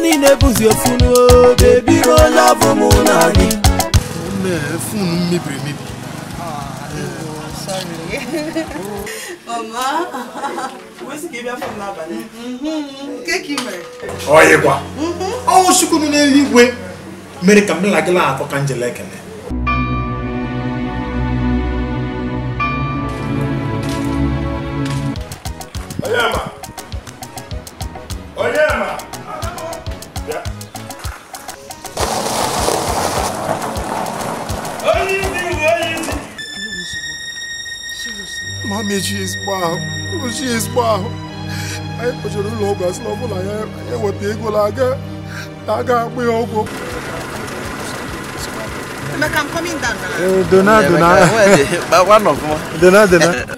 niile bụzi ofu bebi rola bụ mụ na gị fonu mebiri emebi ọyịkwa ọnwụ chukwu nọ n'eluigwe mere ka m lagịla atọ ka njele ekele Mami, ji isbahụ ji isbahụ anyị kpọchiri ụlọ ọgwụ asị na ọ bụla ya eweta ego na aga akpụ ya ọgwụ Emeka, I'm coming down. Eh, dona, dona. One of them. Dona, dona.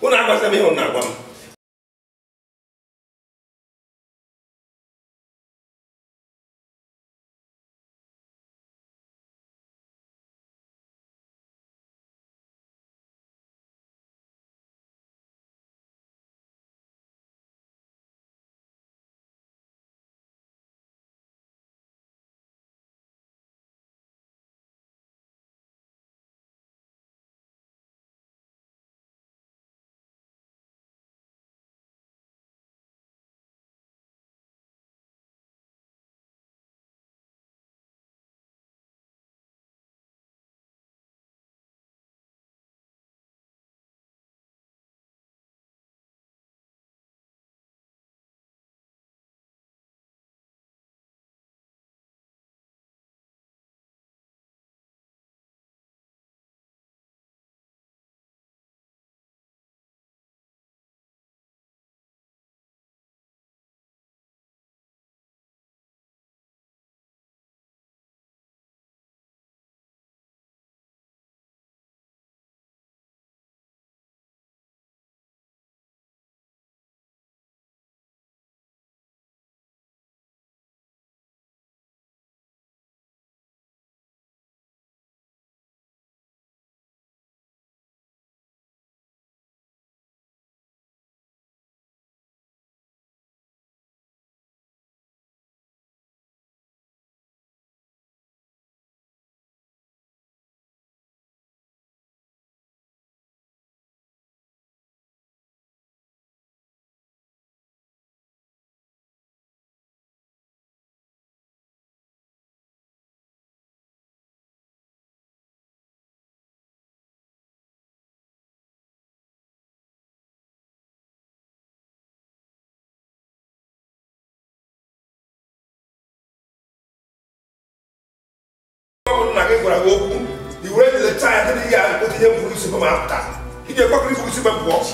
Una cosa mihun na gwara gị okwu i were lecha ya dịrị ah, ya otu ihe mkpụrụ isi ma apụta iji gbakọrọ ifuru isi ma pụọ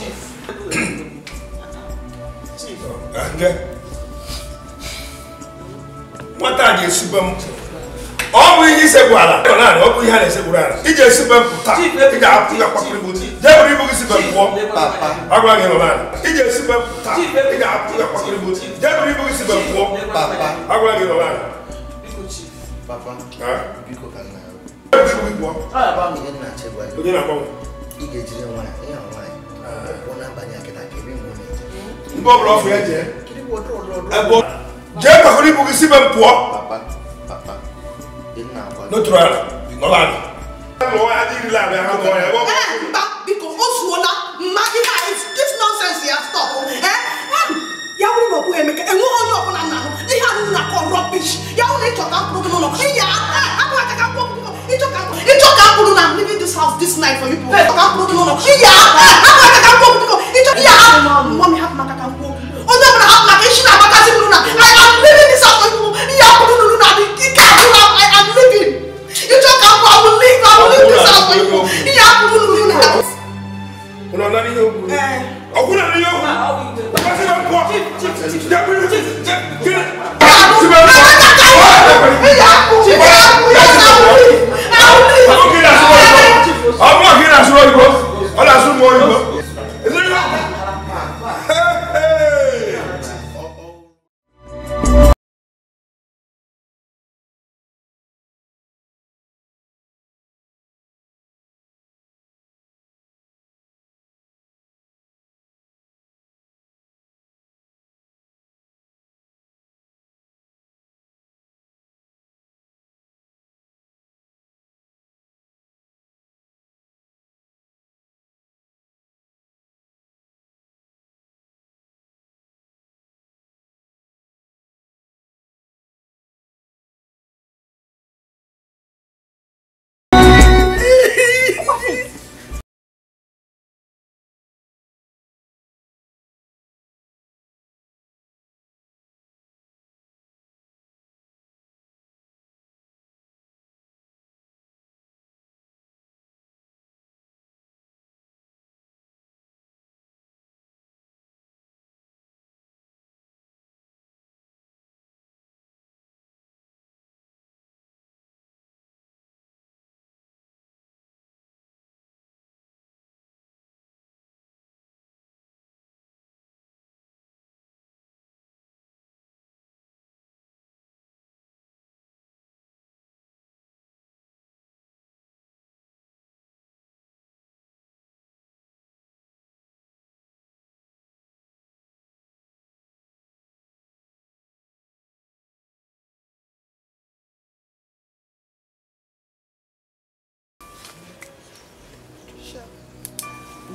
nwata a ga-esibe m ọ bụ ihe isegbu ala ọ bụ ihe a na-esegburu ala iji esibe m pụta ị ga-apụ ya gbakọrọ ibu jee bụrụ ibu gị sibe m pụọ agwa gị nọba iji esibe m pụta ị ga-apụ ya gbakọrọ ibu jee bụrụ ibu gị sibe pụọ agwa gị nọba ala onye na-agbanwe ị ga-ejiri nwaanyị ịha nwaanyị ụkwụ na-abanye akịta ka ebe nwe mgbe ọbụla ọfụ ya jee jee pakọrọ ibu gị si be m pụọ n'otu ala nọla ala biko o zuola mma ihe a na ọkwụ emeka enweghị na kọ rọbish ya na ịchọta mkpụrụ gị I'm leaving this house this night for you people. Hey, kakak no no no. Iya, kakak kakak kok kok. Itu iya. Mami hap maka kakak kok. Oh no, no hap maka shi na maka si luna. I am leaving this house for you people. Iya, no no no. I can't do I am leaving. You talk about I will leave. I will leave this house for you. Iya, no no no. Una na ni yo. Eh. Okuna ni yo. Ba se ba ko. Chip chip chip. Yeah ọmọ kí n àsúrò òyìnbó ọlọ́sùn mọ́ òyìnbó.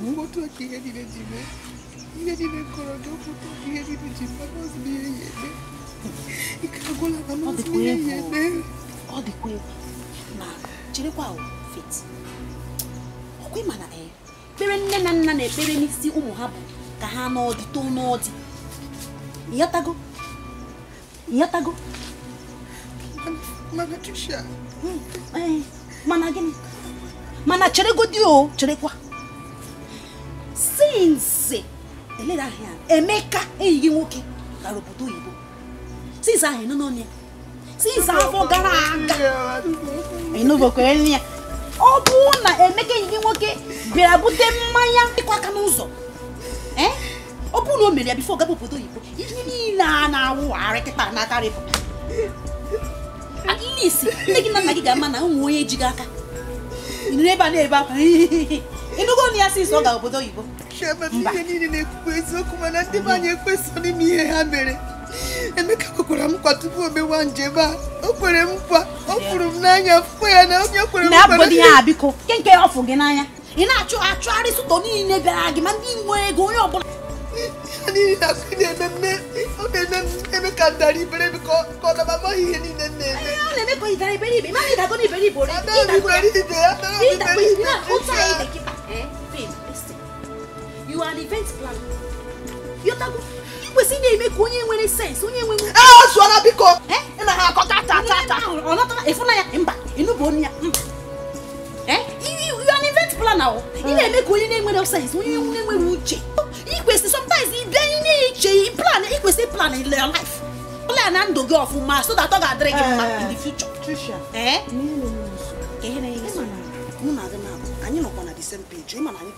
mkpọtụ ọka ihe niile ji mee ihe niile kọrọ gị ọkpụkọ ihe niile ji mma n'ọzọ ihe ya eme ike agwụla na n'ọzọ ihe ya eme ọ dịkwa egwu ma jirekwa fit ọkwa ịma na ee ekpere nne na nna na-ekpere n'isi ụmụ ha bụ ka ha n'ọdị too n'ọdị mana gịnị mana since elera ahịa emeka enyi gị nwoke gara obodo oyibo since ahụ ịnụ n'ọnụ ya since afọ gara aga ịnụbokwe nri ya ọ bụrụ na emeka enyi gị nwoke bịara bute mmanya ịkwa aka n'ụzọ ọ bụrụ na o mere ya bifo gaba obodo oyibo ihe niile a na-awụgharị kịta n'akarị bụ at least nne gị na nna gị ga-ama na ụmụ onye ejighị aka ịnụrụ ebe a na-ebe akwa ịnụgo na ya si ọ ga obodo oyibo ihe niile na-ekwukwu eziokwu mana ndị be anyị ekweso n'ime ihe ha mere emeka kwekwara nkwa tupu o mewa njem a o kwere mkpa ọ fụrụ m n'anya fụkwa ya na onye kwere nkwa biko nke nke ọ gị n'anya ị na-achụ achụgharị sụtọ niile bịara gị ma ndị ego onye ọbụla niile na-eme eme ka ka ọ ihe niile na-eme Eh? Babe, listen. You are an event planner. You're not going kwesị na-eme ka onye nwere sense onye nwere ee eh, zụọra biko Eh, ina ha akọta ata ata ata ọ nọtara ịfụna ya mba Inu onu ya Eh, you you are an event planner o oh. ị eh. na-eme ka onye na-enwere sens onye na-enwere uche ikwesị sometimes ide ị na-eche plan ikwesị plan in your life plan na ndụ gị ọfụma so that ọ ga-adịrị gị in the future. ee Eh. eh? na-enye nsogbu mụ na gị na anyị nọkwa na the same page ịma na anyị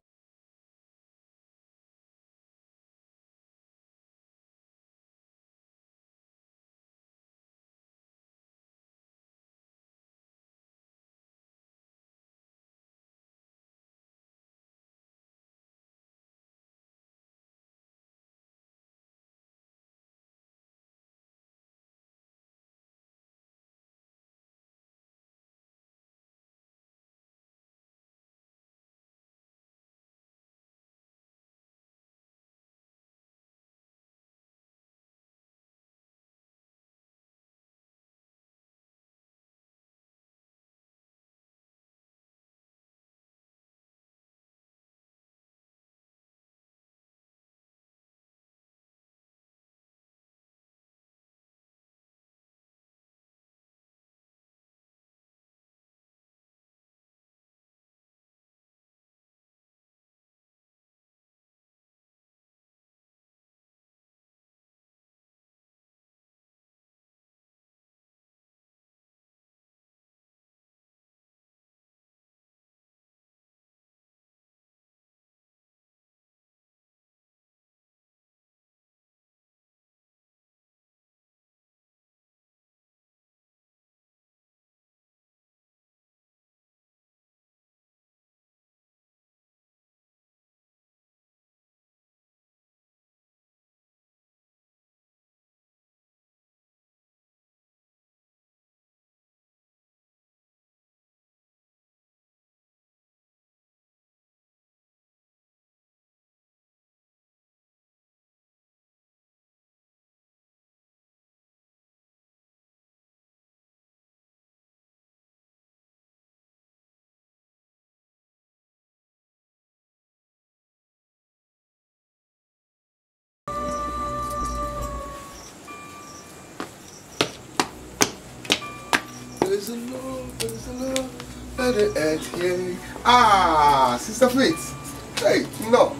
Let it end here. Ah, Sister Faith. Hey, no.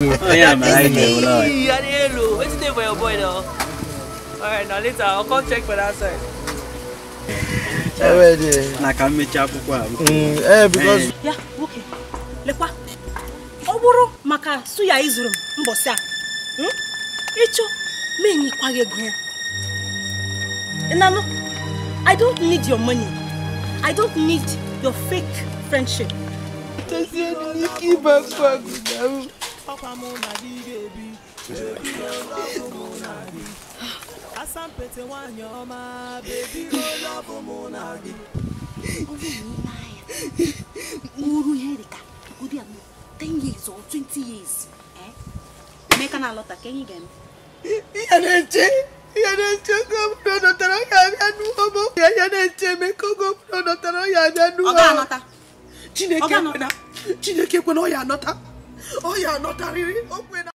yeah, man, I know, Hello, what's the name for your boy now? Alright, now later, I'll come check for that side. Already. Na ka mmechi akwụkwọ Eh, because. Ya, nwoke, lekwa. Ọ bụrụ maka suya izuru m mbọsị a. Ịchọ, ma enyikwa gị ego ya. Ịnanụ, I don't need your money. I don't need your fake friendship. Tosiye, n'ike ịba akwa ọkwa mụ na gị ga-ebi bebi lọbụ mụ na gị ah, asampete nwanyị ọma bebi lọbụ mụ na gị mụrụ ihe dịka ụdị a ten years or twenty years eh? emeka na-alọta ka enyi ga-eme ihe na-eche ihe na-eche oge ọbụla ọ nọtara ọ abịa n'ụwa ma ọ ya na-eche emeka oge ọbụla ọ nọtara ọ abịa n'ụwa chineke kwena ọ ya anọta Oh, yeah, not a really open. Oh,